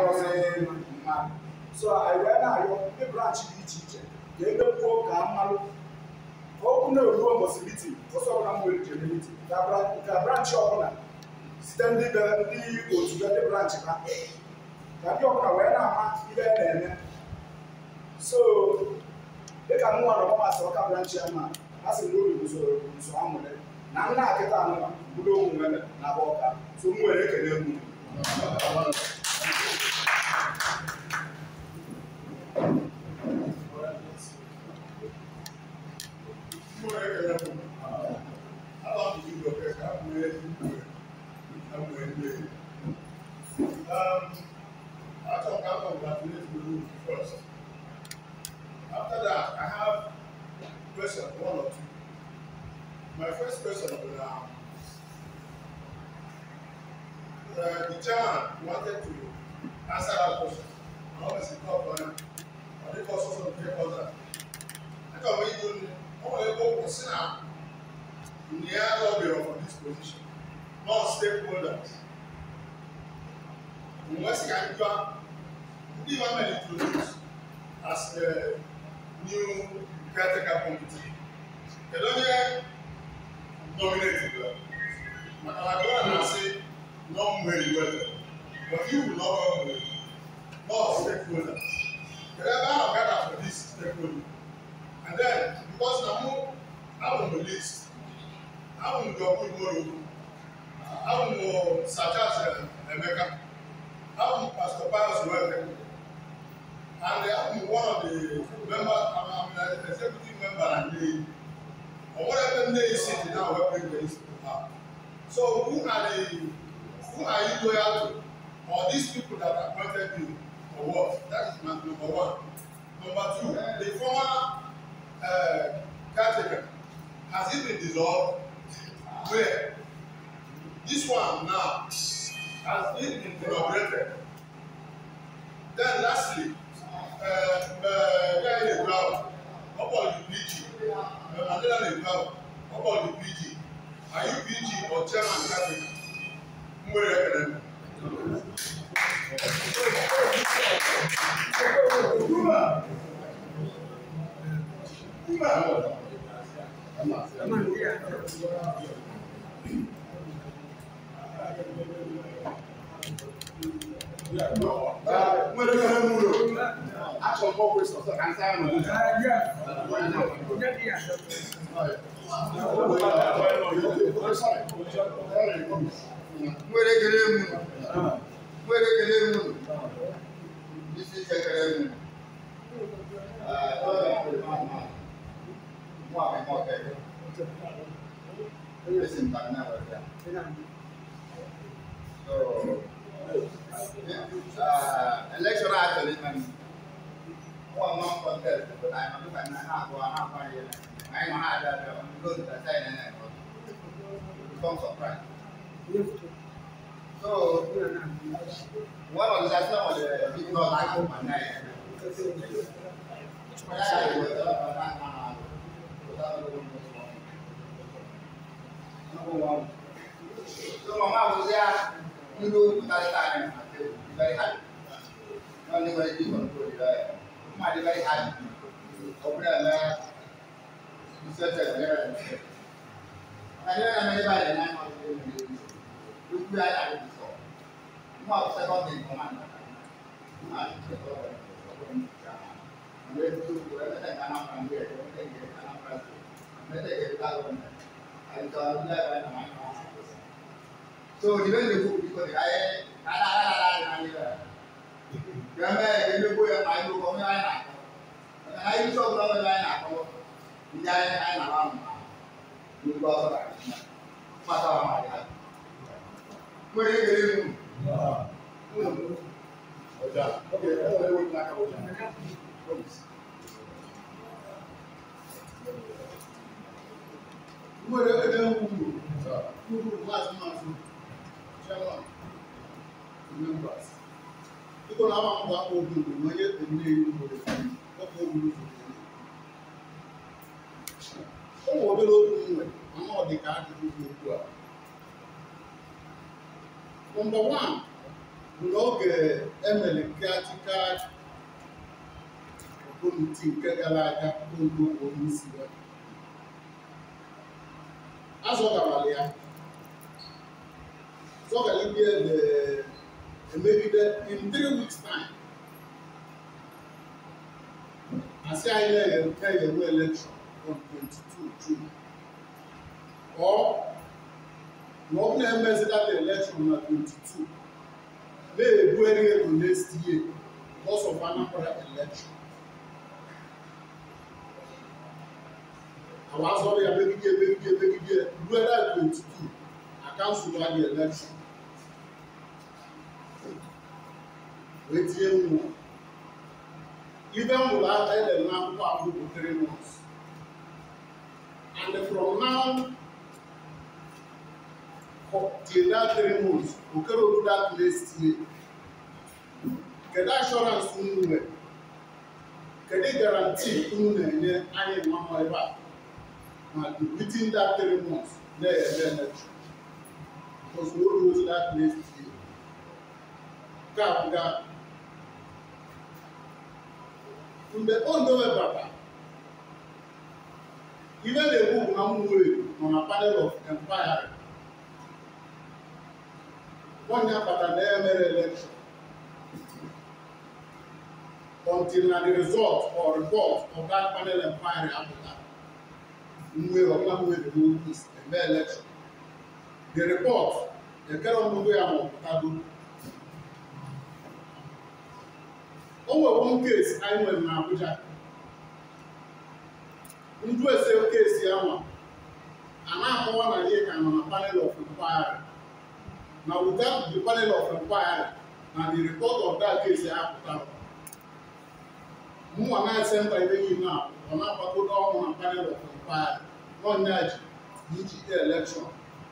arụzi mmadụ so anyị wee na-arịọ ndị branch dị iche iche ka emepuo ka mmanụ ka okwu na-eruo mbọsị mitin ụzọ ọbụla m were jere mitin ka branchị ọbụla site ndị otu ndị branchị ha ka ndị ọbụla wee na-ama ihe na-eme so dịka m nwere ọmasị ọka branchị ya ma a sị na uru usoro nso ha na nna nkịta anụma bụrụ onwe na bụ ọka so m nwere ekele mụ dominate in that. And I go and say, not very well. But you will not run away. Not stakeholders. You never have gathered for this stakeholder. And then, because now I'm on the list, I'm on the good tomorrow. I'm on such as America, I'm Pastor Pius Welker. And I'm eh, one of the members, I'm an executive member and the But what happened there is city now where everybody's out. So who are they? Who are you loyal to? Or these people that appointed you? for what? That is my number one. Number two, the former uh, caretaker has it been dissolved? Where? This one now has it been inaugurated? Then lastly, uh, uh, where is the ground? How about you? Your Adela is now. How about the PG? Are you PG or chairman cabinet? Mwere Akademi. Kuma. Kuma. Kuma. Kuma. 我来给你们弄。阿松哥会做做干菜嘛？来，来，我来给你们弄。我来给你们弄。你是谁给你们？哎，老板，老板，麻烦麻烦，大哥大哥，这个是干啥玩意儿？哦。election actually man one month contest but I am not going to have one half one year I am not that I am going to that side and I become surprised so one of the that's not the big not like of my night Number one. So, Mama was there. คือดูตาตายนะครับไปทันนั่นเรียกว่าจีบคนตัวใหญ่มาได้ไปทันผมเนี่ยนะมีเสื้อเจ็บเนี่ยอันนี้ไม่ได้ไปเลยนะเขาจะไปดูดูใหญ่ใหญ่ที่ตุดมาเอาเสื้อผ้าดินประมาณนั้นมาเสย้อผ้าไม่ได้ดูไม่ได้ทตอะไรไม่ได้ทำอะไรไต่ได้เห็นอะไรไม่ได้เห็นอะไรไอ้ตอนแรกไปทำอะาร so the way they cook because they are la la la la la gbẹmẹ ẹgbẹ gbogbo yẹ yóò kọ mi láyé nàkọ ẹ náà yóò sọgbọn mi láyé nàkọ ìyá yẹ láyé àmọ́ yóò gbọ́ ọ̀rọ̀ àti ìyá pátá wà máa yá mo yẹ kéré mu Mo yẹ kéré mu o, mo yẹ kéré mu o, Chairman, members. People now want to open the money Ụmụ obere nwe ama ọ ajụjụ dị okwu a. Nọmba wan bụ na oge emere practical kọmiti nke gara aga oge okwu onye isi ya. ya so can you get the and maybe that in three weeks time I àṣẹ ayẹyẹ yẹn kẹ yẹn wọ election on twenty two june or wọn bí ẹ mẹsì that election on twenty two may ebu ẹni yẹn to next year because of another election. àwọn asọ́rọ̀ yà mẹ́kíkẹ́ mẹ́kíkẹ́ mẹ́kíkẹ́ lu ẹ̀dá twenty two I can't survive the election. retie nwa ibe m wụrụ aka edere n'akwụkwọ abụ bụ three months and from now till that three months okere oru that next year kedu assurance unu nwere kedu garanti unu na-enye anyị nwa ebe a ma within that three months na-eme emechu because we will lose that next year. Ka bụ gaa mgbe o dowebara ihe na-ekwu bụ na ụmụnwere nọ na panel of empire onye akpata na emere election until na the result or report of that panel empire apụta mwe ọbụlanwere n'okwu eme election the report ekere ọmụgwọ ya ma ọpụtago o nwere one case anyị nwere na Abuja ndị ese case ya nwa a na-akọwa na ihe ka nọ na panel of inquiry na without the panel of inquiry na the report of that case ya pụtara mụnwa na-ese mba ibe gị na ọ na-agbagodo ọnwụ na panel of inquiry nọnyaji DGA election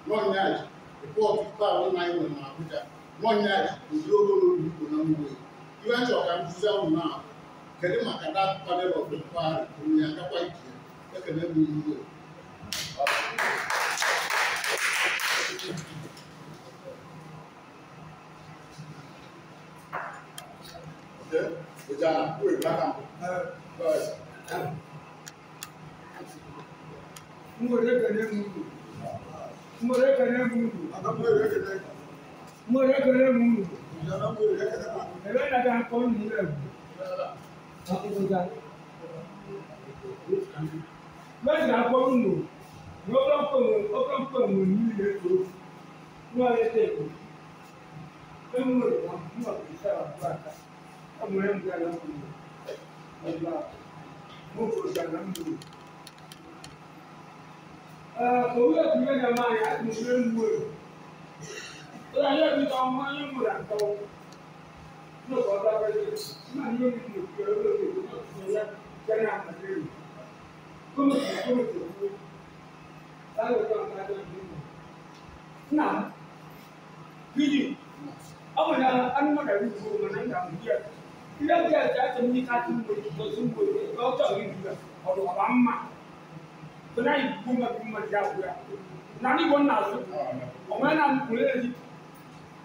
nọnyaji report ikpe ahụ na anyị nwere na Abuja nọnyaji ụdị ogologo Igbo na Mgbe Iranchi ọ̀kanfusẹ́ ọ̀hún náà kedu maka that panel of inquiry onye agakwa ike ekele m iwe Mwere ekele m uru. Mwere ekele m uru ẹ̀rọ ìrìnàjò akọ́nù nílẹ̀ ẹ̀rọ akọ́nùjà lọ́sì akọ́nù lò ní ọkọ̀ǹkọ̀ ní ilé èkó ní ọ̀rẹ́ tẹ̀ èkó ẹ̀ ń wọ̀ wọ́n ní ọ̀rẹ́ tẹ̀ àbúrò àká ọmọ ẹ̀ ń gbé aláwọ̀ ọ̀gbà mọ̀ ọ̀gbà lámùlò. Òwúrọ̀ kúrẹ́ ni a máa yà á ti mú ẹ̀ ń wọ̀ Sọ́dọ̀ ayé mi tọ́ ọmọ ayé mi rà tọ́ ọ.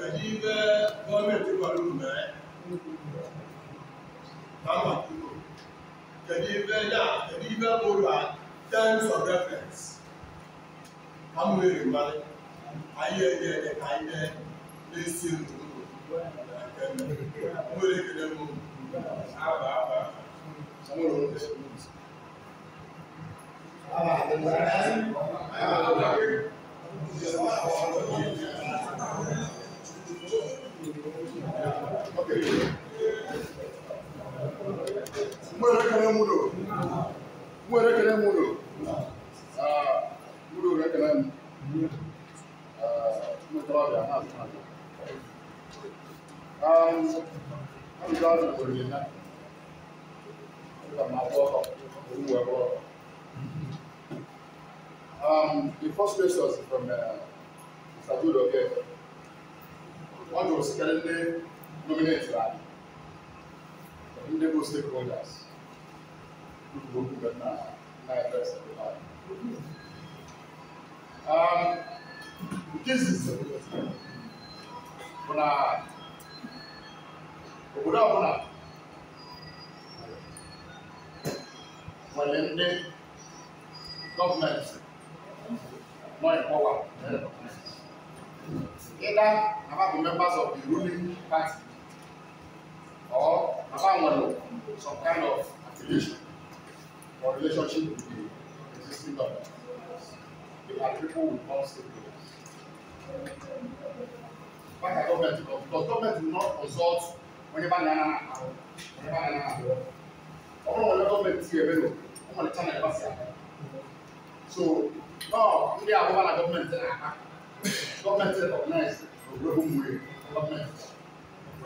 Kadija gọọmenti kọrọ unu na ya kama kuro kedu ife ya kedu ife bụrụ a terms of reference ka m nwere mmadụ anyị enye enye ka anyị na-esi ndụ nwere ekele m aba aba nwere oge Thank you. Mu yɛrɛ kɛnɛ mun don? Mu yɛrɛ kɛnɛ mun don? Aa mu don yɛrɛ kɛnɛ mun? Aa mu tɔgɔ bɛ yan n'a sɔnna. Aa an bɛ taa sɔrɔ yen na.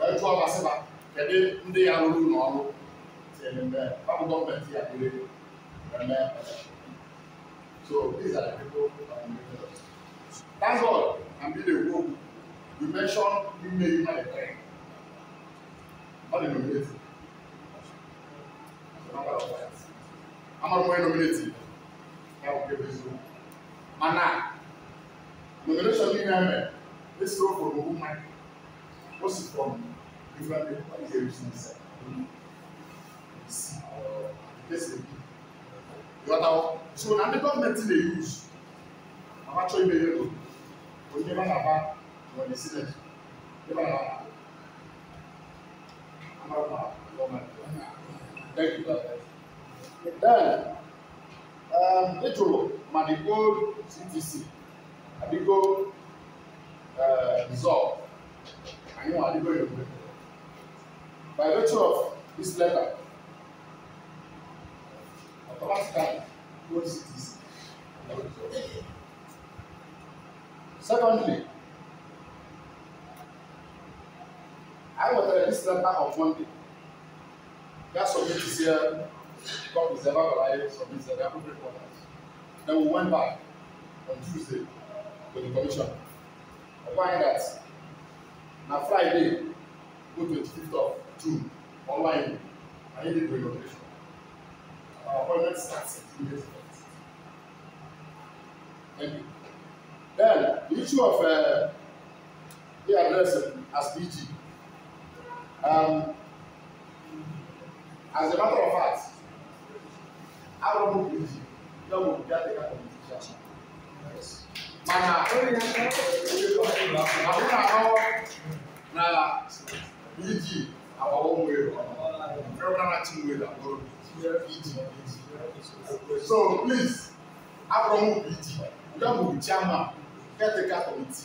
wee jụọ masịba kedu ndị ya rụrụ ụlọ ọrụ ọrụ gọọmenti ya dịrị eme so these are the people that we need to that's all and be the group we mention ime ime the train ọ dị nominate amara onye nominate ya bụ kebe eziokwu mana nomination niile eme esiro from ogun mind o si from Different variations. Listen. You are now. So now the government they use. I'm actually very good. We never have that when they see that. Never have that. I'm not bad. Thank you, God. Then, um, Little Madigo CTC, Madigo uh, Dissolve, and you know, Madigo by virtue of this letter automatically holds this. Secondly, I was at this letter on Monday. That submit is here, God is ever alive, submit the appropriate quarters. Then we went back on Tuesday to the commission. I find that na Friday, go 25th of do online and you need to your patient. Our appointment starts immediately. Thank you. Then the issue of uh, the address as BG. Um, as a matter of fact, I don't know BG. That would be a competition. Yes. Mana, I don't know na BG our own way around. Federal way that God here it. So please, Abraham will be it. You have to be chairman, caretaker committee,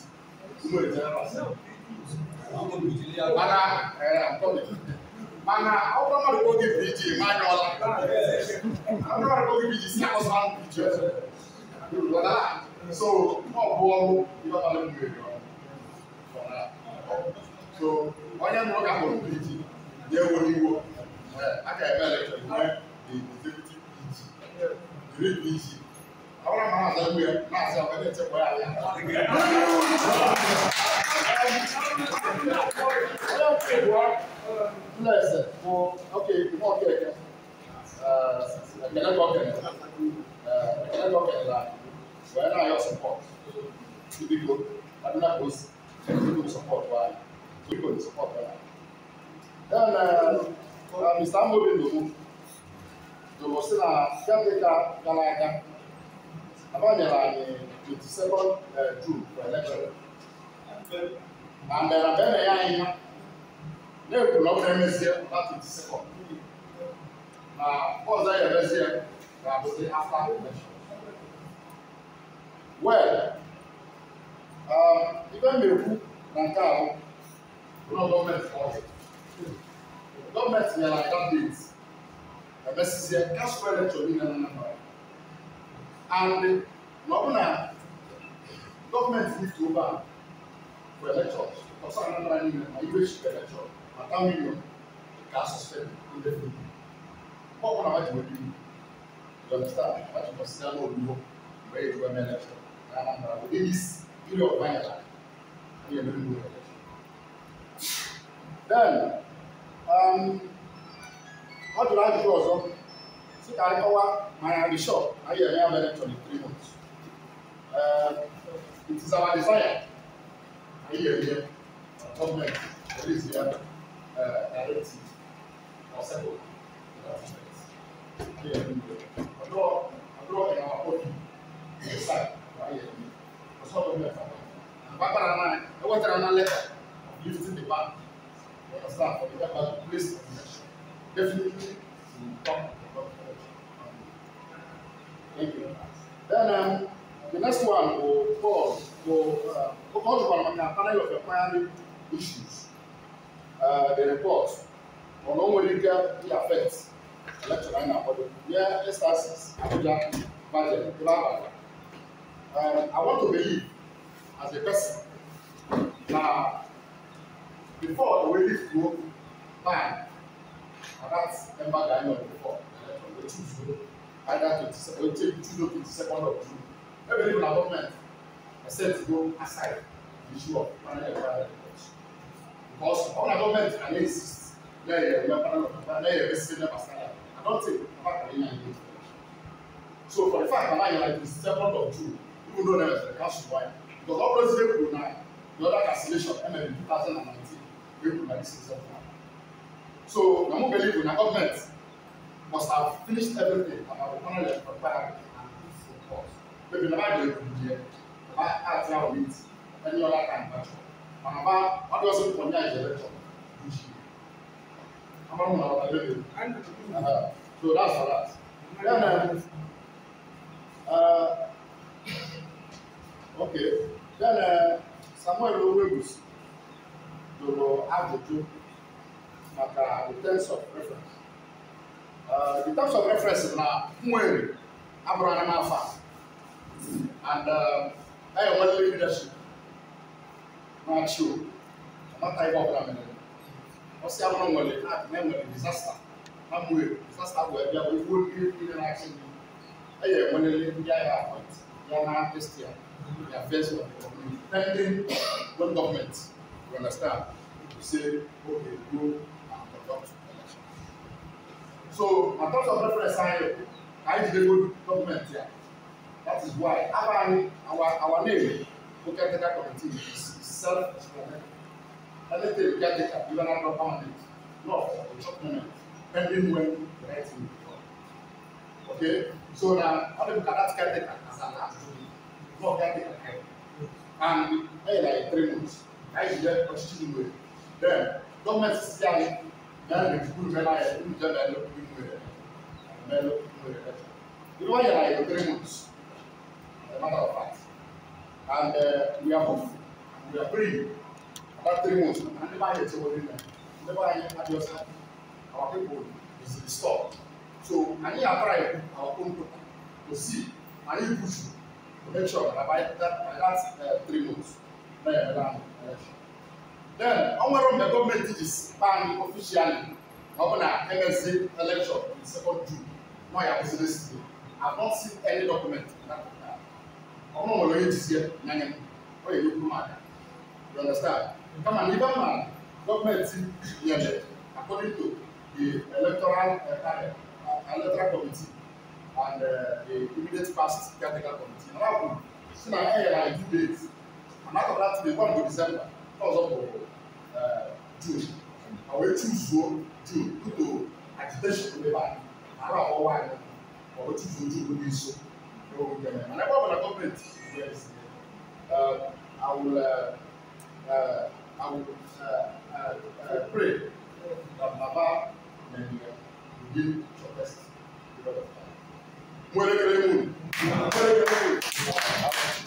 you know the general assembly. Mana, I'm coming. Mana, how come I go give BG? Mana, I'm not going to give BG. See, I was on BG. So, no, go, you have to let me go. So, onye mụrụ ka hụrụ BG yẹ wo ni wo aka ẹgbẹ ẹlẹtọ ìwé ìdẹkùtì pg ìrè pg àwọn àmà àdá wù yẹ náà sọ ọbẹ tẹ wọ àyà. Nna ẹsẹ̀ mo ok mo ọkẹ ẹkẹ ẹkẹlẹ kọ kẹlẹ ẹkẹlẹ kọ kẹlẹ la wẹ́n náà yọ support ibi ko adúlá kò sí ẹ̀kọ́ support wa ibi ko support wa. Then uh, uh, Mr. Amobi Dogo, Dogo sị na caretaker gara aga, abanyere anyị 22nd uh, June for election. Na mbere mbe na ya anyị ha, na-ekwu na ọ bụrụ emezie na 22nd. Na ọzọ ya emezie ga-abụzi after election. Well, um, ibe m na-ekwu na nke ahụ, ụlọ gọọmenti ọzọ gọọmenti nyere aka date emesịsịa gasụrụ elektọ niile na Anambra and na ọ bụ na gọọmenti lift over for elektọ ọsọ Anambra niile ma iwe chịkwa elektọ ma ta milion ka asụsụ ndị ndị ọ bụ na ha ji wee bibi dọkịta ha ji kwụsịa n'obodo mgbe e jiwe mee elektọ na Anambra bụ ndị isi iri ọgbanyela onye mere n'ụlọ elektọ then what do I do also? See, I cover my resort. I have an electron in three months. Uh, it is our desire. I hear here, government, at least here, uh, directive, or several governments. I draw, I draw in our body, inside, I hear here. That's what government are. Bàbá náà, ẹ wọ́n tẹ̀lé ọ̀nà lẹ́tà. definitely Thank you. Then the next one will call will uh, call to a of economic issues. Uh, the report on how will it affect electoral and body. Here budget I want to believe as a person now before the way this and that's Emma Gani on the four from the two zero either twenty seven or twenty two twenty second of June every day na government said to go aside the issue of panel environment because all na government na dey insist let your your panel of panel let your best friend never stand out i don take papa kari any. dey so for the fact mama yan like the second of June even though dem dey cancel wire because all those people na the other cancellation ml 2019. thousand and nineteen this example. So na mo believe na government must have finished everything and have honour their property and peace of course. Maybe na bá dé ìdíje, na bá àti àwọn meet any other kind of jọ. Ma na bá wọ́n dọ̀ sí pọ̀ ní àjẹ́ lẹ́tọ̀ ní ṣe. Amadu na wọ́n lè lè. So that's for that. Then, uh, uh, okay. Then uh, Samuel Owegbusi lụrụ ajụjụ maka uh, terms of reference uh, the terms of reference na nwere abụrụ anyị n'afọ and uh, anyị enwere leadership na-achị o amata ihe ọbụla mere ọsị abụrụ nwere na enwere disaster na mwere disaster bụ ebe bụ ugbo mmiri mmiri na-achị ndị anyị enwerele ndị agha appoint ya na estia ya first of the community pending one government you understand to say okay go So, my terms of reference are here. I need to go document here. That is why our our, our name, we can committee, is self-explanatory. Anything you can take up, you are not bound it. No, the document, pending when the right thing will come. Okay? So now, how do you look at that caretaker as an absolute? No caretaker care. And, hey, like three months. I should get a student with. Then, government is saying, na nufuru bɛ n'ayɛ olu tɛ bɛ lɛ kuru mu yɛrɛ bɛ lɛ kuru mu yɛrɛ tɛ yɔrɔ yɛrɛ ayɛ three months ɛ matter of fact and uh, we are off we are free about three months na ne b'a yɛ tɛ wɔ ne na ne b'a yɛ adiɔsa our people is restored so ani y'a fara yɛ our own people to see ani push to make sure that by that by that uh, three months ne yɛrɛ bɛ na election. Then, on one of the government teaches ban officially, Governor MSC election in second June. No, I was listening. I not seen any document in that regard. I'm not going to see Nanyan. Oh, you look mad. You understand? Come on, even man, government elected according to the electoral uh, electoral committee and uh, the immediate past capital committee. Now, since I had like two days, and after that, they one to December because of June àwọn etí ìfúwó June kótó agitation ló dé báyìí àárọ̀ àwọn wáyé àwọn etí ìfúwó June ló dé so ló ń gbẹ̀rẹ̀ and ẹgbẹ́ ọ̀bọ̀nà gọ́ọ̀mẹ̀ntì ìwé ẹ̀sìn àwòlẹ̀ àwòlẹ̀ pray that baba nàìjíríà will be your best. Mwere kere moun. Mwere kere moun.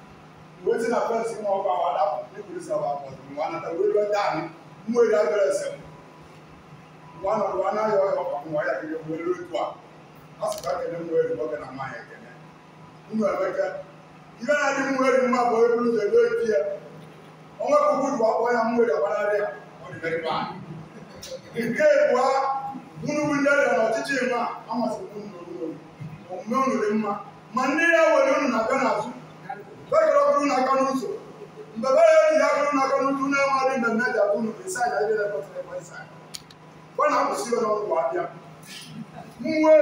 wetin na first thing ọkọ àwọn adákùn ní polisi àwọn àpọ̀jù wọn náà tàbí wíwẹ́ dání mú èdè abẹ́rẹ́ sẹ́wọ̀n wọn náà wọn náà na ọkọ̀ àwọn wáyà kéde wọn lórí a asọ̀tà kẹ́lẹ́ mú a bọ́kẹ́ náà máa yẹ kẹ́lẹ́ nínú ẹ̀ bẹ́kẹ́ ya nke dị mma ma nne ya were ọnụ na-abịa n'azụ bɛkɛra kunu na kanu so bɛbɛ yɛ ni yakunu na kanu tu n'ɛmɔ ni mɛmɛ ja kunu nsa yɛ yɛrɛ kɔtɔ yɛ kɔtɔ yɛ wọn akɔ si yɔrɔ wɔ abia muwe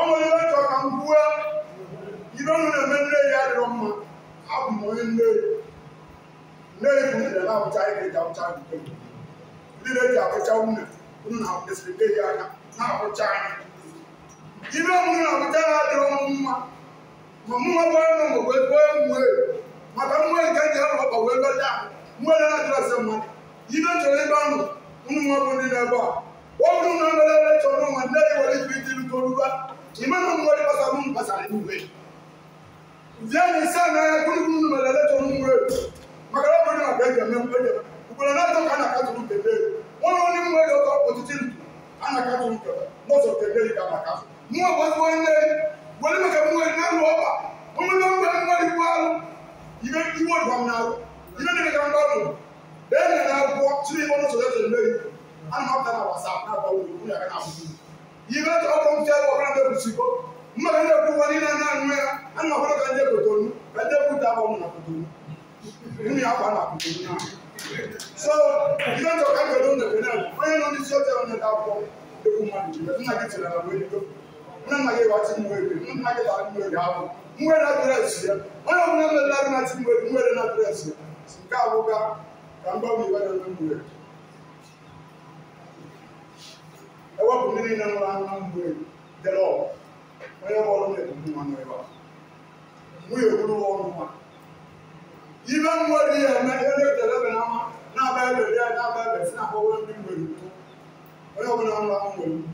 ɔmɔ yɛ bɛtɔ kan buwa yibɛ mu na mɛ nne yɛ adi wɔn ma abumɔ yɛ nne nne yɛ kunu yɛ na awuta yɛ kɛ ja awuta yɛ kɛ yi yɛ di ma mụnwa gbara nọ wee maka nke ndị ahụ ọkpa wee lọta na na mmadụ ibe chọrọ ebe ahụ ụmụ nwa bụ ndị a ọ e chọrọ nwa ndị nwere oruba ime na mmụọ gbasara igwe zie na e maka na ọ bụrụ na ọbịa ga-eme mkpenye ugboro na-atọ ka a na-akatụrụ kebe nwa onye mmụọ ọtụtụ ndụ a na-akatụrụ walima ka muwari na roba wani nan ba muwari balo ibe iwo dwam na ro ibe ne ka mbalo be na na ko tiri mo no so da le an ma ta na whatsapp na ba wo ku na ka afu ibe to ko mo tell wo na be ku siko ma ne ku wani na na nwe an ma ko ka nje ko tonu ka je ku ta ba mo na ko tonu ni ya ba na ko tonu na so ibe to ka ko don da ko na ko no ni so te on na ko e ku ma ni na ki tira na wo ni to muna mage wa ti muwere muna mage la muwere hapo muwe na dress ya wana muna mage la na ti muwere muwe na dress ya sika boga kamba muwe na muwere ewa kumini na mwa na muwere the law wana wala mwe kumwa na ewa muye kulu wa mwa ibe muwere ya na ele telebe na ma na ba ebe ya na ba ebe sina kwa wala muwere wana muna mwa muwere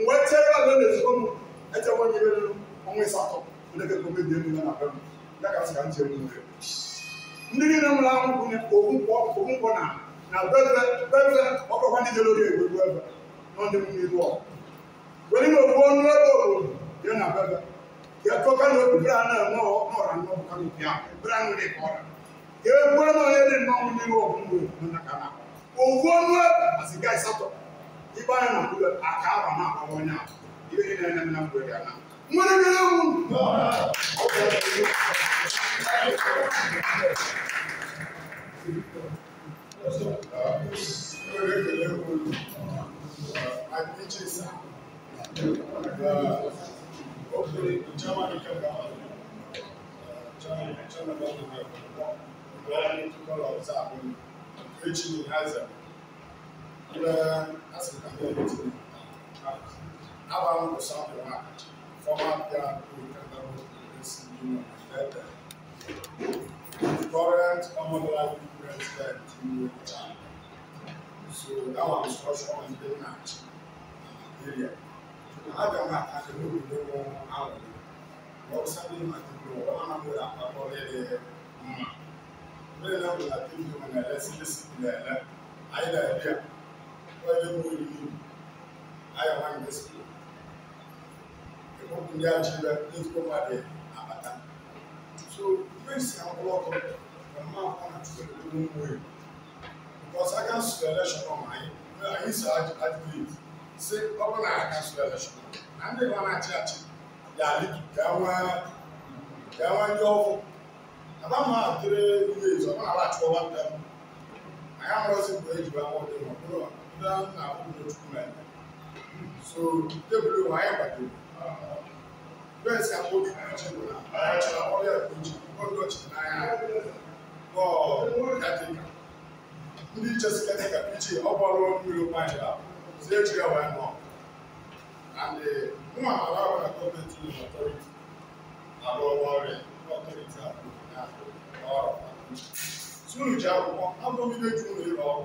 mgbe echere ala na-ezoro m echekwa m ihe ruru ọnwa ịsatọ oneke ka omebi elu na na-abịa ya ka sị ka m ji nwere ndị niile nwere ahụ kwụnye ogunkwọ ogunkwọ na na beze beze ọkọkwa ndị jere oge egwegwu ebe nọ ndị mmiri ilu ọkụ ime okwu ọnụ ebe obodo ya na beze ya kọka na obi bere anọ enwe ọra nnọọ bụ kanụ ya bere anụ ka ọra ka egwu anọ onye dị nnọọ mmiri ọkụ mgbe na kana owu ọnụ ebe asị gaa ịsatọ nnipa no na kuro akaaba no a ɔwɔ no a yɛbɛdi na nam nam kuro de ana mmɔno bi na mu Adventures are hopefully Germany can come Germany, Germany, Germany, Germany, people outside when preaching in Hazard na asị ka ndị ọrụ tiri aba m kwụsị akwụrụ ha fọma bịa Current common life president in the So that one is also on the match area. I don't have to do the wrong hour. What something I can do, I'm not going to have already. Very well, I think when I listen to the either idea wajen wuri aya wani da su da kuma ya ci da ɗin kuma da abata so yin si an kula ko da ma kwana cikin ɗin wuri because I can see the election on my I used to advocate say ọbụla I can see the election na ndị nọ na-achị achị ga-alị gawa ndị ọgwụ adamụ ahụ dịrị ihe ezo ọ na-ala achụwa nwata m anyị amụrụzi mgbe ejiwa nwoke ma ọ bụrụ down our own document. So table wa ayé pàdé. Bẹ́ẹ̀ sì àwọn obìnrin náà jẹ́ wòlá. Àyàjọ àwọn ọ̀rẹ́ ìgbòjì gbọ́dọ̀ jù náírà. Bọ́ọ̀ jáde kà. Ndị iche si kete ka piji ọgbọ ọrụ mmiri nwanyị a si ejiri wee nọ. And nwa ala ọbụla gọọmenti na ọtọriti na-arụ ọrụ ọrịa ọtọriti ahụ na ọrụ. Sunu ji akwụkwọ, abụghị ndị ju ụlọ ịrụ ọrụ.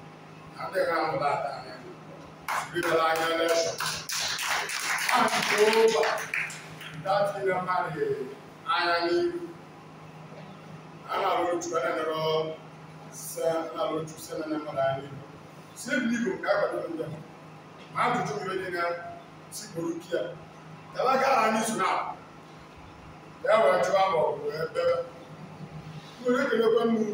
adịghị ahụ dada sirila anya elekshọn anke ụba datile mmadụ anya n'ihu ana rotu ana nọrọ sa ana rotu sa na mmadụ anya n'ihu sie bụ igbo ka akwado ndị ma ajụjụ mgbe dị na sikporo kia talaga ara n'izu na ya wee jụọ ama ọ bụ ebe nwere ekelekwe mmiri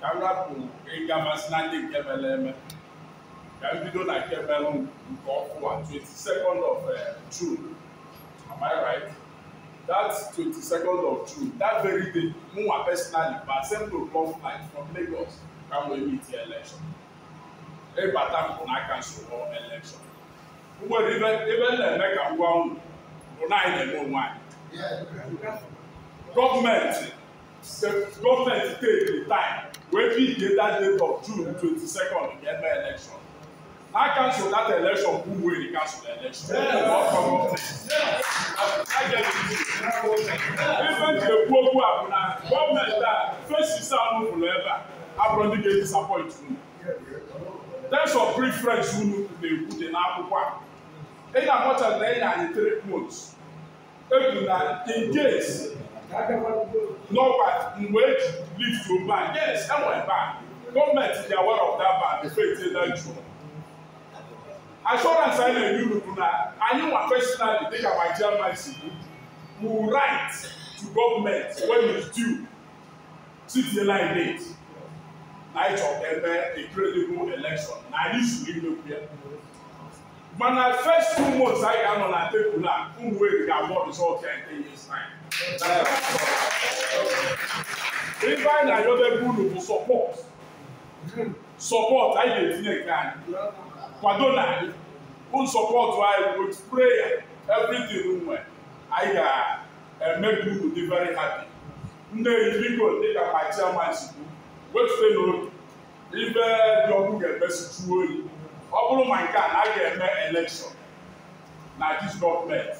yàrá kò egama sinadi kẹmẹ lẹmẹ yàrá do na kẹmẹ lọ nkọ fún wa twenty second of uh, June am I right that twenty second of June that very day mu wa personally by seven o'clock night from Lagos kamo emi ti election ebata nkọ n'aka nsogbu election ugbo ebe ebe nleme ka ngwa unu bụ na anyị na-eme onwe anyị gọọmenti the government take the time wey fit dey that date of june twenty-second to get ever election how cancel that election who wey dey cancel the election yes. work for government yes. i get the even the gbogbo abuna government ah face isa onufulu eba aburondi dey disappoint unu terms of preference unu na-ekwu dị n'akwụkwọ a ị na-amụcha na ị na-anyị three months ebu na in case Norbert Nweji lead to ban. Yes, that went ban. Government they are aware of that ban. The faith is that true. Assurance I know you na anyị nwa personally dịka my chairman si kwu we write to government when it's due citizen line date night of ever a credible election na anyị suru imekwu ya mana first two months I ga-anọ na tebụl a ụmụ wee ga-abụ result ya in ten years time ife anyị na-ayọba ebe unu bụ sọpọt sọpọt anyị ga-etinye nke anyị kwado na anyị bụ sọpọt anyị otu preya everything nwe anyị ga-eme ka unu dị very happy nne biko dịka ma chairman sikwu wetute n'obi ibe dị ọkụ ga-emesitu oyi ọ bụrụ ma nke a na a ga-eme elekshọn na dis gọọmenti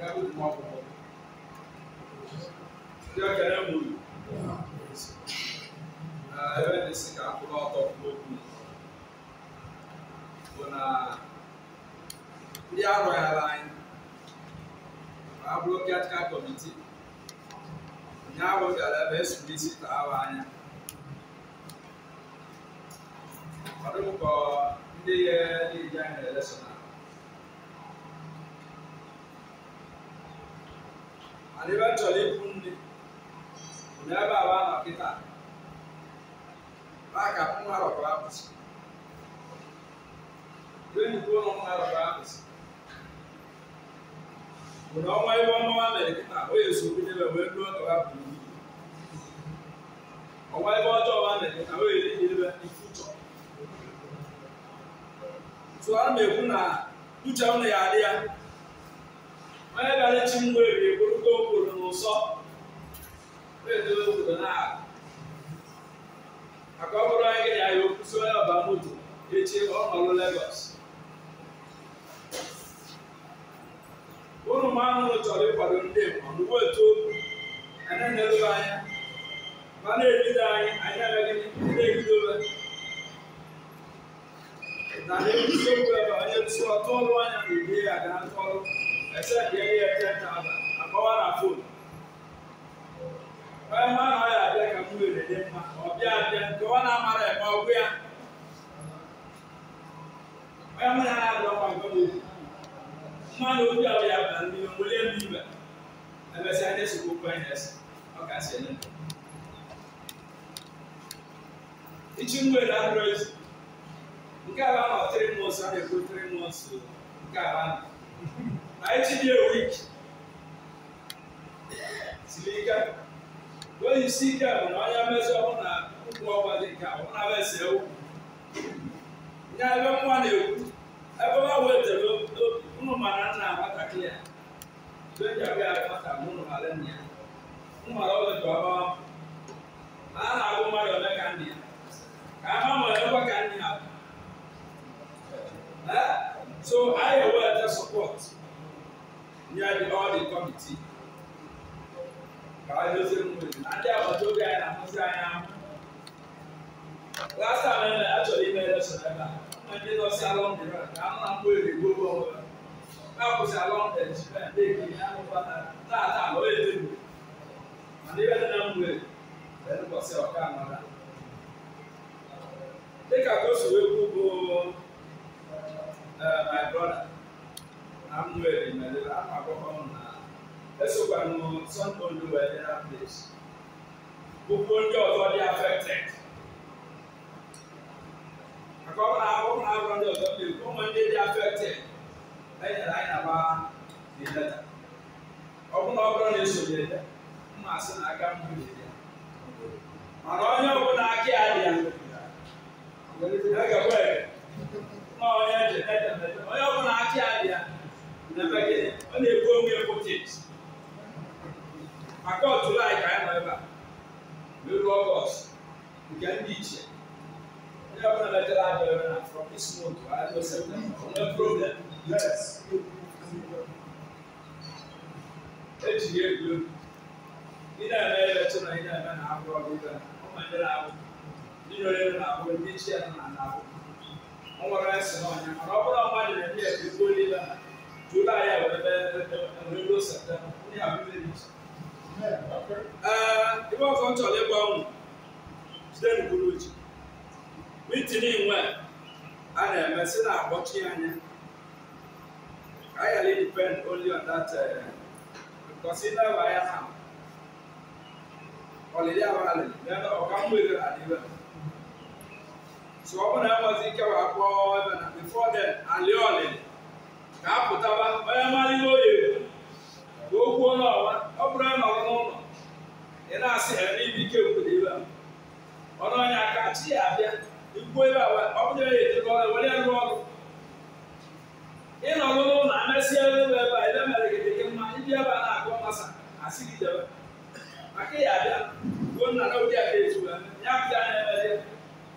gabi kuma kɔ yɔ kɛlɛ mu yi aa ɛbɛ de si ka kuma ɔtɔ kuma ku bona ndi arɔ ya la yi aburo kiatika kɔmiti nyawo gala bɛ suli ya yɛ lɛ sɔnna. mana ebe nne bụ na ebe awa nọ kịta aka nwa apụsị enyigo ụlọ nwa rọrọ apụsị ọnwa ebe ọnwa mere kịta o ya so wee ka ha bụrụ ọnwa ebe ọjọọ ha mere kịta o ya edebe ifu tụọ na-ekwu na uche ya adị onye bịara chi mgbe ebi eburute obodo n'ụsọ na-edobe obodo na-aga maka ọ bụrụ onye gị na ya okwu si ọba moto echi ọ nọrụ Lagos m ahụhụ chọrọ ịkwado ndị mgbe etu okwu anyị na-elebe anya ma na-ebido anyị anyị agaghị na-ebidobe na ebidobe na ebido ebusi okwu ebe onye ọtụ ọrụ anya na ibe ya ga-atụ ọrụ ɛsɛ deɛ yɛ yɛ kyɛ taa na akɔwa na fone. brother, I'm wearing my little, I'm a woman now. Let's go and know some people were in that place. Gbogbo ndị ọzọ dị affected. Maka ọ bụla ọ bụla agwọ ndị ọzọ dị ụmụ ndị dị affected. Enyere anyị na gbaa dị leta. Ọ bụla ọ bụla na-esonye ya, mma asị na aka m nwere ya. Mana onye ọbụla aka ya dị ya. Aga ma ɔyɛ tɛtɛtɛtɛ ɔyɛ ɔfɔna ati adeɛ nabɛgye ɔna ebu omi ɛfɔ tit akɔ ɔtula ayika ɛna ɛba mɛlu ɔgɔs nga ndi kyɛ ɔyɛ ɔfɔna bɛtɛ la abɛɛ bɛ na from this month wa adi ɔsɛ bɛ ɔna problem yes eti yɛ ebu ina ɛna yɛ bɛtɛ na ina ɛna na agorɔ bi bɛ na ɔma ọ nwere nsị n'ọnya mana ọ bụrụ ọma nyere ndị ebe igbo niile na julaị a wee ruo septemba ndị a ọzọ ee ibe ọfọ nchọrọ ịgwa ụmụ jide n'okpuru ji mitin nwe a na-eme si na akpọchi anya ka anyị ghara depend only on that because ị na anya ha ọlịlị ahụ ọka adịbe so ọ bụ na enwezi ike wee kpọọ ebe na before alị ka a pụtaba onye mara ihe o yiri ka o kwuo n'ọwa ọ bụrụ na nọrọ n'ụlọ ị na-asị ha n'ibe ike kwuru ibe ọnụ onye aka chi abịa ikwuo ebe ọ bụrụ ya ọrụ n'ụlọ na ebe a ebe mere gị mma ndị ebe a na-agụ masa asị gị aka ya na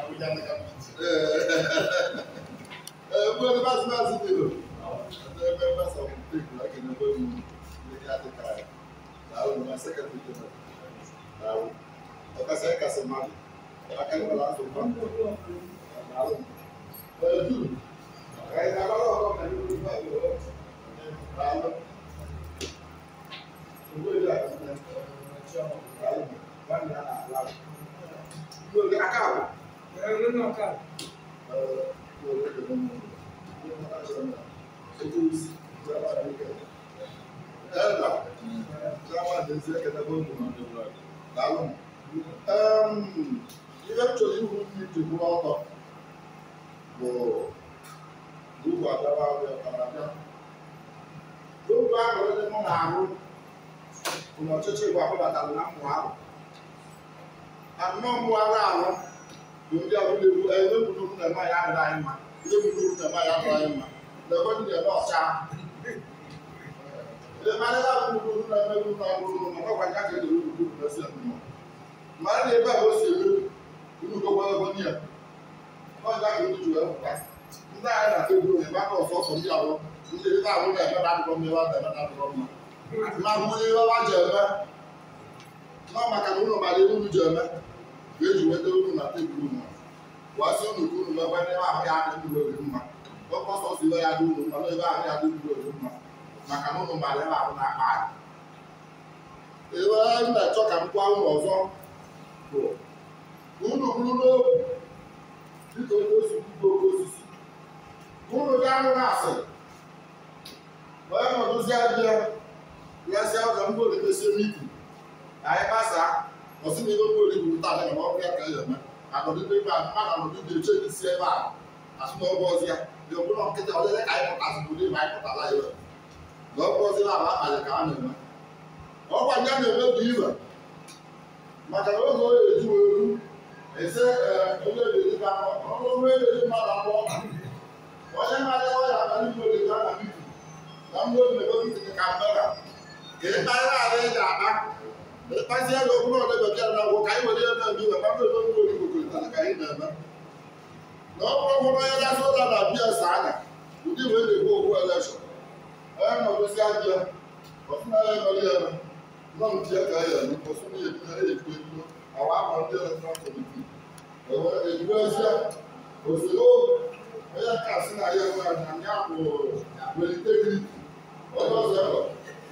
Abuja ní kábíyèsí. Ẹ ẹ bó ẹni bá ti bá ti dèrò. Ẹ bẹ́ẹ̀ bá sọ fún pé ìgbà kìíní bó ni ilé àtẹ̀ká rẹ̀. Làwọn olùmọ̀ sẹ́kẹ̀tì tó lọ. Làwọn ọ̀ka sẹ́yìn kà sí máa. Akẹ́kọ̀ọ́ la sọ fún mi. Làwọn ọ̀dù. Ẹ̀yin àbálọ̀ ọ̀kọ́ pẹ̀lú olùkọ́ ìlú. Làwọn owó ìlú àti ìlú. Làwọn ìlú àti ìlú. Làwọn ìlú àti ìlú. Um, eventually, you need to go out of gbogbo àgbàbà ọ̀rẹ́ ọ̀kadà gbogbo àgbàbà ọ̀rẹ́ mọ̀ n'àrụ ụmụ ọtụtụ igwe akwụbata na mmụọ ahụ anọ mmụọ ahụ ahụ ndị abụla egwu ebe bụrụ na nwaanyị adịghị anyị mma ebe bụrụ na nwaanyị adịghị anyị mma na ebe ndị ebe ọcha mmadụ abụrụ na ebe bụ na abụrụ na ọgwa ya ka edere ugwu na esi mma mmadụ ebe a o si ebe ugwu gọgwa ebe ndị a ọja ka ndị jụrụ akwụkwọ ndị anyị na tebụl na ebe aka ọsọ ọsọ ndị abụ ndị ndị abụ na ebe na-adịrọ mma ebe adịrọ na-adịrọ mma ma bụ onye ebe ọba ji eme nọ maka na ụlọ mara ebe unu ji eme ka eji weta unu na tebụl unu gwasị unu ka unu mebe ebe ahụ ya adịghị uru mma ọkọsọ si ebe ya dị uru mma n'ebe ahụ ya adịghị uru mma maka na ụnụ mara ebe ahụ na-akpa anyị ebe m na-achọ ka m gwa unu ọzọ bụ unu bụrụ n'obi dịka onye osi bụ oke osisi unu anyị ọsị na ihe okwu ori bụrụ taa na ọbụ ya ka ya eme akọdịbe ebe a mmadụ anọdụ dị eche dị si ebe a asụnaọgwụ ọzọ ya dị ọbụla nkịta ọlele ka anyị pụta asụpụrụ ime anyị pụtala iwe na ọgwụ ọzọ na-aba akpalị ka a na-eme ọgwụ anyị a na-eme bụ iwe maka na oge onye eju eru ese onye ebedi ka ọrụ onye ebedi mmadụ abụọ onye mmadụ ọya na ndị mmadụ ga na mbibi na mmadụ na-eme ka mmadụ ka ịkparịa ara ị akpa Pasi ya go kuma da bakiya na go kai wani yana bi ba babu don go ni go ta kai na ba. No ko ko ya da so da da biya sana. Udi we le go go ala so. Eh no go sia biya. Ko kuma ya go ya na. No mu tiya kai ya ni ko so ni ya ni e ko ni. Awa mo de na so ko ni. E wa e go sia. O so o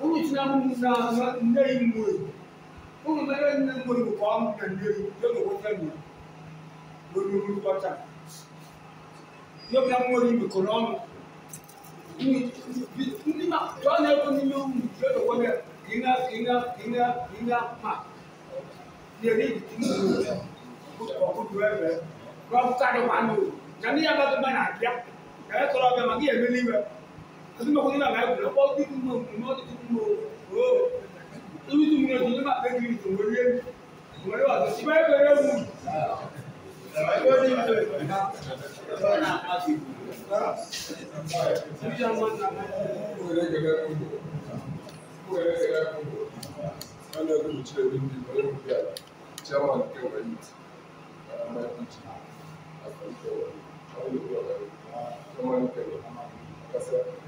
cũng cũng như như chúng chúng ta giờ cái những có cho là ungitinamnanga ndeyimwe ungimelenimwe ngokwamuka ndeyi njengokwetanya ngolumulu kwata yobyamweli mikonomo ndima twaneko nilumu njengokwene inga inga inga inga ma yeliitimulu wakudwebe lwakukade wanu naniyabakebanadya nayekolabya magiyemeliwe Tapi mau kita nggak boleh. Kau itu mau, mau itu mau. Oh, itu itu mau jadi apa? Kayak gitu, mau dia, mau dia apa? Siapa yang kerja mu? Thank you.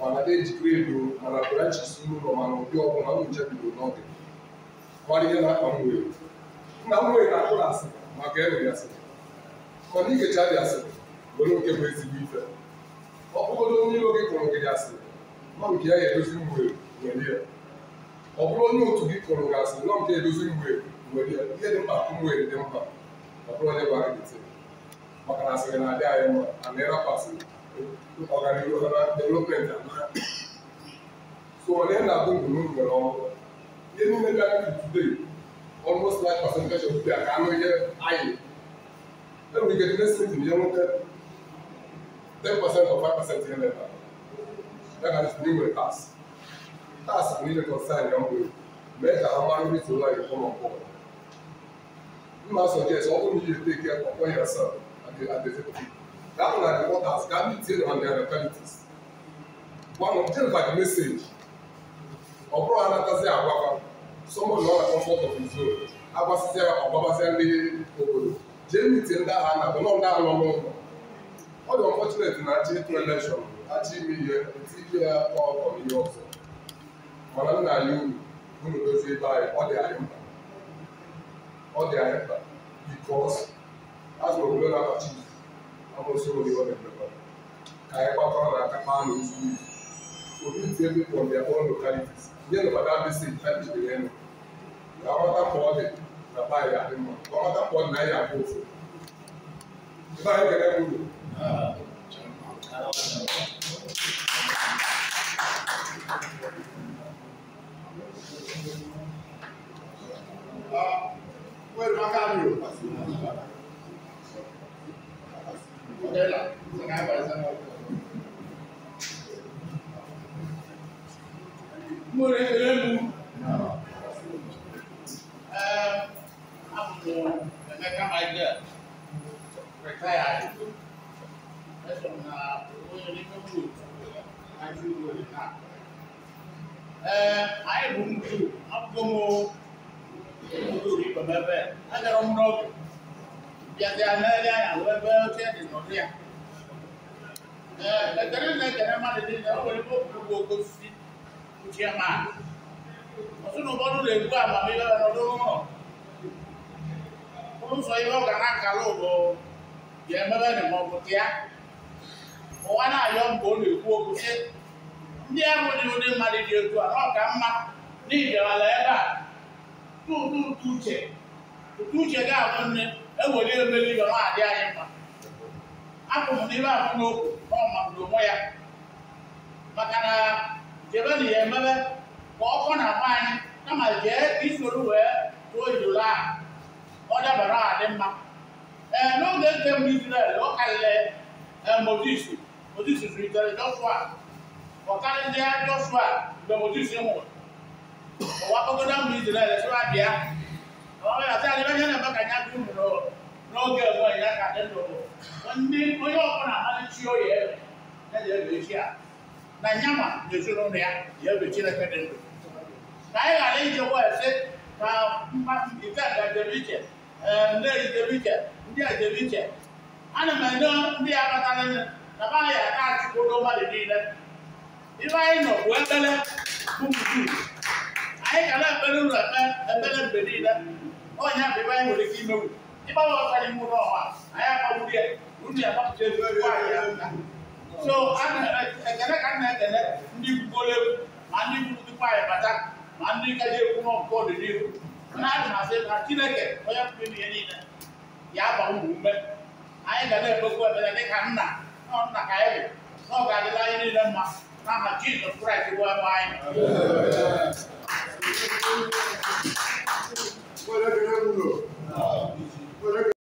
mana ejikwa ego mana branches n'ụlọ mana ụdị ọbụla m jebidoro n'ọdị mara na-akpa m nna m na-akpụ na asị maka enwe ya asịrị mana igecha dị asịrị were nke bụ ezigbo ife ọ onye iro gị gị asịrị nọ nke ya edozi mgbe nwere ya ọ bụrụ onye otu gị kpọrọ gị asịrị nọ nke edozi mgbe nwere ya ihe dị mkpa dị mkpa ọ bụrụ na asịrị na-adị anyị mma asịrị organisation development amount. So on end up with no well, they no make that today. Almost like percentage of people are coming here high. Then we get next meeting, you know that 10% or 5% here later. That is new with us. That's a really concern, young people. Make our money to like come on board. You must suggest, all you need to take care of yourself at the, at the table. That one are the waters gathered on their localities. One of them like message. Ọbụrụ anatazi agwaba, someone nọ na comfort of his own, agbasịzịa ọgbabazịa ndị obodo, jee miti ndị agha na bụ nọ ndị agha nọ n'ụlọ. Ọ dị unfortunate na achị ịtụ election achị ime ihe, eti ya ọkọ n'ihe ọzọ. Mana nna anyị uru, unu ebe anyị, ọ dị anyị mkpa. Ọ dị anyị mkpa, because obodo na-abachi kama usoro ni wale kwa ka ya kwa kwa na kama ano usuru so we tell people on their own localities yẹn lọ bàtà bí sèé tá ìdè yẹn nù na wọta pọ̀ dẹ na bá yà ni mọ wọta pọ̀ na yà bó fò bá yà gẹ́gẹ́ bó Ah, wait, I got Nutella. Sen här var det sen Mo rẹ̀ rẹ̀ mu. Ẹ amò Emeka Michael retired. Ẹ sọ na onye n'ime wuru n'aji wuru na. Ee, anyị bụ ndị abụghị m ndị ori bemebe. Agara m n'ọgụ. yɛde anɛɛde ayɛ awɛbɛɛ kɛ de nɔbea ɛɛ ɛdɛrɛ nɛ dɛrɛ ma de de nɛ ɔwɔle bɔ kuku oko fi kutia ma ɔso no bɔdu le gu ama mi bɛbɛ nɔdo hɔ ɔmu sɔ yi bɛ ɔgana kalo bɔ yɛ mɛbɛ ne mɔ kutia ɔwa na ayɔ mbɔ le gu oko fi ndị ahụ dị ụdị mmadụ dị otu a na ọ ka mma n'ihi bịara ebe a tu tu uche uche ga-abụ nne ewere emeri ga ọ adị anyị mma apụ m n'ime ahụ n'okwu ọma bụ onwe ya maka na jebena ya emebe ka ọkọ na-agba anyị kama jee isoro wee tụọ ijuru ahụ ọ dabara adị mma ee n'oge nke mbụ Izrel ọ karịrị Mozis Mozis zụlitere Joshua ọ karịrị Joshua mgbe Mozis nwụrụ ọwakọgodo mbụ Izrel sịwa bịa asị adị onye na-eme ka anya dị uru n'oge ugbu ya ka dị ndụ ndị onye ọbụla amaghị chi oyi ebe ya na-ebe echi a na nyama na-ezinụlọ ya ji ebe chineke dị ndụ ka anyị ghara ije wesị ka mmadụ ejebe iche ndị ejebe iche ndị ejebe iche ana m enye ndị ya kpatara nne na maghị aka achịkwodo mmadụ niile ibe anyị nọ bụ ekpere bụ anyị ka na-ekpere ụlọ ekpere mgbe niile ɔnyɛ abeba yi wòle k'i mewu i b'a wɔ fani mu n'o ma a y'a ma wuli yɛ wuli yɛ a b'a fɔ jɛnɛ fɔ a so an ɛ ɛ kɛnɛ ka nɛ kɛnɛ ndi gbole ma ndi kutu kpa yɛ bata ma ndi ka je kuma kɔ de ni n'a yi ma se ma kiri kɛ ɔyɛ kuli mi yɛ ni dɛ y'a ba wu wu mɛ a ye gane bɛ ko ɛmɛ ne ka na ni dɛ ma n'a ma Jesus Christ wa ba yɛ. whatever they Hola.